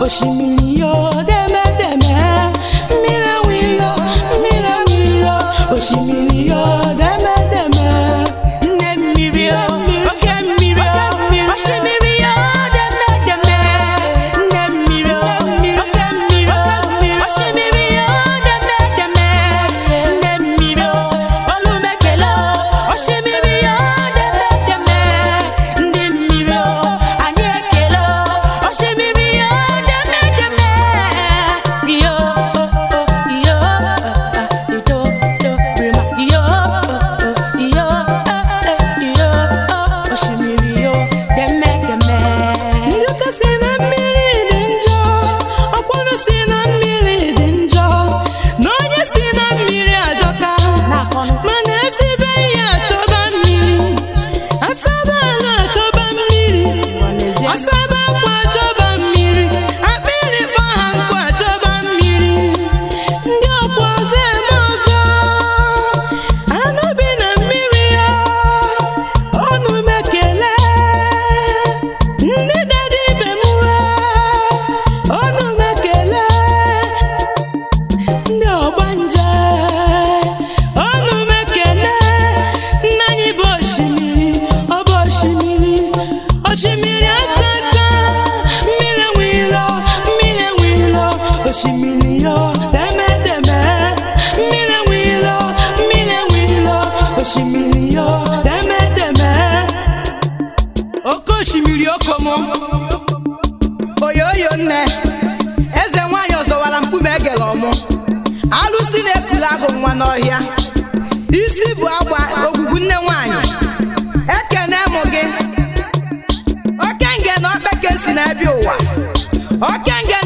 osimiri ya gbara mkpume egere ọmụ alụsi na-ebula agụ nwa n'ọhịa isi bụ agba ogwugwu nne nwanyị ekene mụ gị okenge na okpeke si ụwa okenge